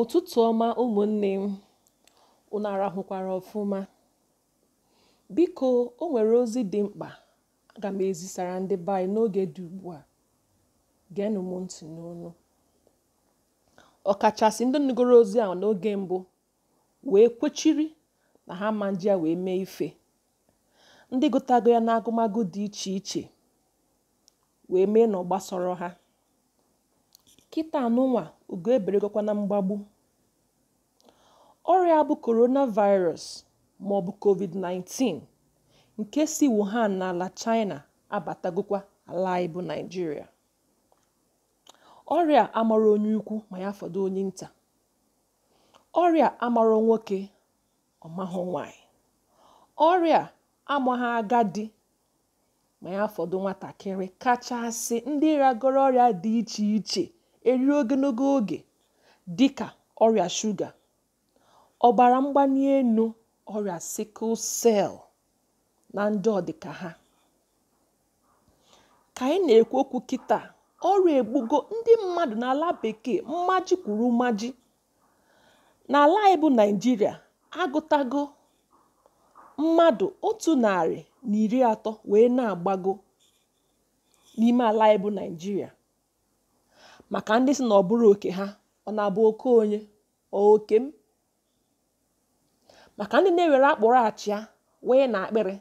ụtụtụ ọma ụmụnne m unu arahụkwara ọfụma biko o nwere ozi dị mkpa aga m ezisara ndị baa n'oge dị ugbu a geenụ m ntị n'onu ọkachasị ndị nụgoro ozi ahụ n'oge mbụ wee kwechiri na ha ma nji wee mee ife ndị gụtago ya n'agụmagụ dị iche iche wee mee na ọ ha kịta anụnwa ugo eberegokwa na mgbagbu ọrịa bụ coronavirus maọbụ covid-19 nke si wuhan ala china abatagokwa ala anyị bụ naijiria ọrịa amara onye ukwu ma ya fọdụ onye nta ọrịa amara nwoke ọmahụ nwanyị ọrịa amaghị agadi ma ya fọdụ nwatakịrị kachasị ndị ragoro ọrịa dị iche iche eruo ogologo oge dị ka ọrịa shuga ọbara mgbali elu ọrịa sikụl sel na ndị ọdịka ha ka anyị na-ekwu okwu kịta ọrịa egbugo ndị mmadụ n'ala bekee mmaji kwuru mmaji n'ala anyị bụ naijiria agụtago mmadụ otu narị na iri atọ wee na-agbago n'ime ala anyị naijiria maka ndị si na ọ bụrụ oke ha ọ na-abụ oke onye oke m maka ndị na-ewere akpụrụ achịa wee na akpịrị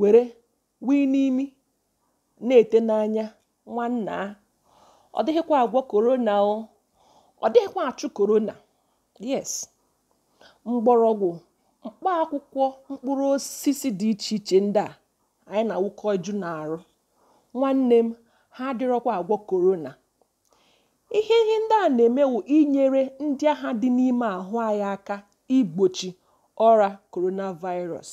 were wee n'imi na-ete n'anya nwanna ọ dịghịkwa agwọ korona o ọ dịghịkwa achụ korona yes mgbọrọgwụ mkpọ akwụkwọ mkpụrụ osisi dị iche iche ndị a anyị na-awụkọ na arụ nwanne m ha adịrọkwa agwọ korona ihe ihe ndị a na-eme inyere ndị agha dị n'ime ahụ anyị aka igbochi ọra coronavirus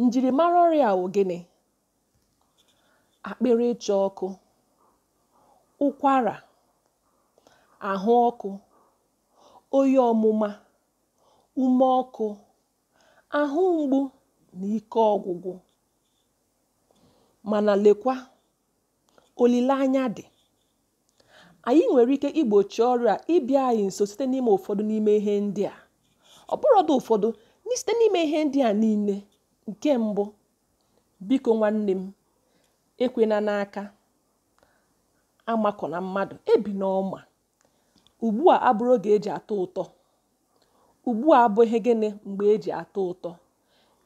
njirimara ọrịa wụ gịnị akpịrị ịcha ọkụ ụkwara ahụ ọkụ oyi ọmụma ume ọkụ ahụ mgbu na ike ọgwụgwụ mana lekwa olileanya dị anyị nwere ike igbochi ọrịa ịbịa anyị nso site n'ime ụfọdụ n'ime ihe ndị a ọ bụrọdụ ụfọdụ site n'ime ihe ndị a niile nke mbụ biko nwanne m ekwena n'aka amakọ na mmadụ ebi n'ọma ugbu a abụrụ oge eji atọ ụtọ ugbu a abụghị gịnị mgbe eji atọ ụtọ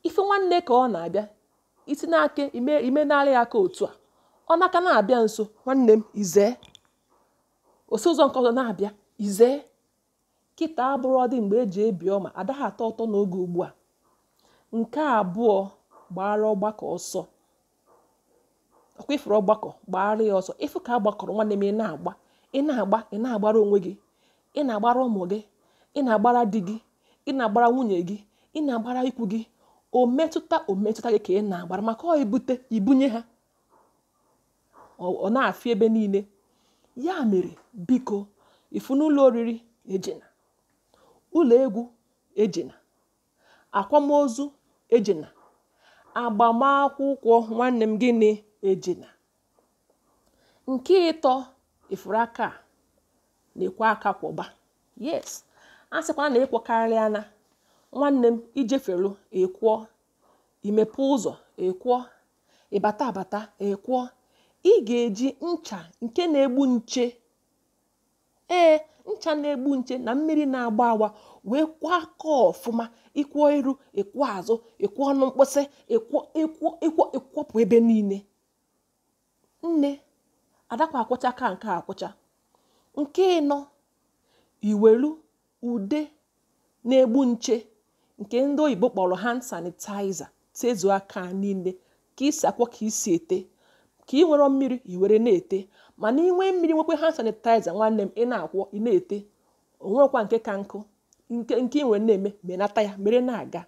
ife nwanne ka ọ na-abịa isi n'aka ime imenarị ya aka otu a ọ n'aka na-abịa nso nwanne m izee osi ụzọ nke ọzọ na-abịa izee kịta abụrụ ọdị mgbe eji ebi ọma adaghị atọ ụtọ n'oge ugbu a nke abụọ gbara ọgbakọ ọsọ ọkwa ifuru ọgbakọ gbara ya ọsọ ịfụ ka agbakọrọ nwanne m ị na-agba ị na-agba ị na-agbara onwe gị ị na-agbara ụmụ gị ị na-agbara di gị ị na-agbara nwunye gị ị na-agbara ikwu gị o metụta o metụta gị ka ị na-agbara maka ọ ibute ibunye ha ọ na-afị ebe niile ya mere biko ifu n'ụlọ oriri ejena ụlọ egwu ejena akwamozu ejena agbamakwụkwọ nwanne m gịnị ejena nke ịtọ ifuru aka na-ekwe aka kwọba yes a sịkwana na ịkwọkarịa na nwanne m ijefelu ekwo imepe ụzọ ekwo ịbata abata ekwo. ị ga-eji ncha nke na-egbu nche ee ncha na-egbu nche na mmiri na-agba awa wee kwọ aka ọfụma ịkwọ iru ịkwọ azụ ịkwọ ọnụ mkpịsị ịkwọpụ ebe niile nne adakwa akwụcha ka nke akwụcha. nke ịnọ iwelu ude na-egbu nche nke ndị oyibo kpọrọ hand sanitizer tezuo aka niile ka isi akwọ ka isi ete ka ị nwere mmiri i were na-ete mana inwe mmiri nwekwe hand sanitizer nwanne m ị na-akwọ ị na-ete onwekwa nke ka nkụ nke nke ị nwere na-eme menata ya mere na-aga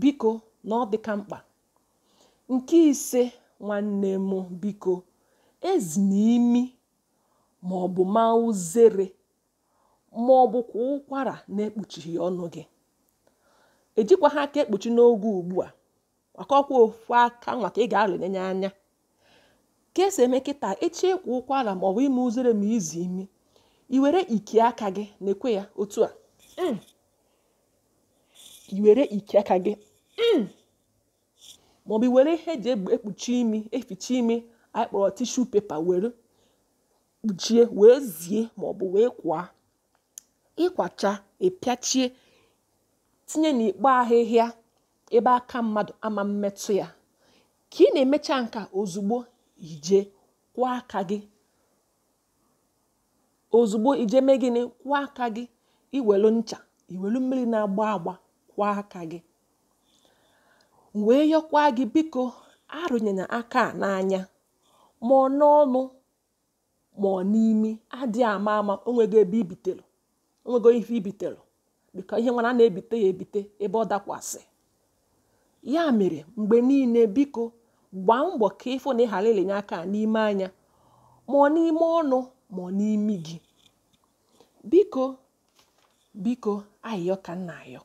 biko na ọ dịka mkpa nke ise nwanne m biko ezi na imi ma ọ bụ ma uzere ma ọ bụkwa ụkwara na-ekpuchighị ọnụ gị ejikwa ha aka ekpuchi n'oge ugbu a maka ọkwa ofu aka nwa ka ị ga anya ka esi eme nkịta echi ịkwụ ụkwara ma ọ bụ ime uzere ma izi imi i were iki aka gị na-ekwe ya otu a mm. i were iki aka gị mm. maọbụ were ihe eji ekpuchi imi eficha ime anyị kpọrọ tishu pepa were kpuchie wee zie maọbụ wee kwa ịkwacha ịpịachie tinye n'ikpo ahịhịa ebe aka mmadụ ama mmetụ ya ka ị na-emecha nka ozugbo ije kwụọ aka gị ozugbo ije mee gịnị kwụọ aka gị iwelu ncha iwelu mmiri na-agba agba kwụọ aka gị wee yọkwa gị biko arụnyere aka a n'anya ma ọ n'ọnụ ma ọ n'imi adịghị ama ama onwego ebe ibitelu onwego ife ibitelu biko ihe nwana na-ebite ya ebite ebe ọ dakwasị ya mere mgbe niile biko gbaa mbọ ka ịfụ na ị ghara ilenye aka n'ime anya ma ọ n'ime ọnụ ma ọ n'imi gị biko biko ayịyọ ka nna ayọ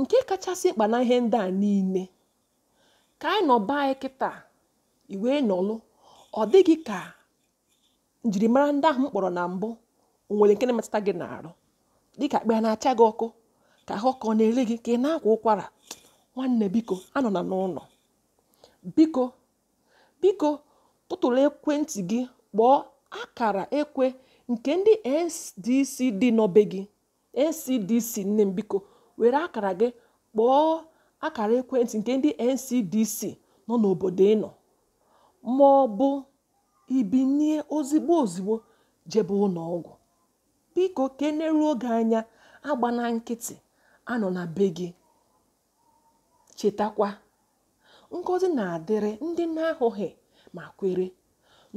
nke kachasị mkpa na ihe ndị a niile ka anyị nọ anyị kịta iwee nọlụ ọ dịghị ka njirimara ndị ahụ m kpọrọ na mbụ onwere nke na-emetụta gị n'arụ dịka akpa ya na-acha gị ọkụ ka ahụ ọ na-ere gị ka ị na-akwa ụkwara nwanne biko anọ na n'ụlọ biko biko tụtụrụ ekwentị gị kpọọ akara ekwe nke ndị ncdc dị n'obe gị ncdc nne m biko were akara gị kpọọ akara ekwentị nke ndị ncdc nọ n'obodo ị nọ ma ọ bụ ibinye ozigbo ozigbo jebe ụlọ biko keneruo oge anya agba na nkịtị anọ na be gị chetakwa ngọzi na-adịrị ndị na-ahụghị ma kwere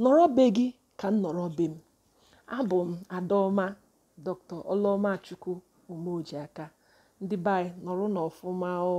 nọrọ be gị ka m nọrọ be m abụ m adaọma dr Chukwu omeojiaka ndị be anyị nọrọ n'ọfụma o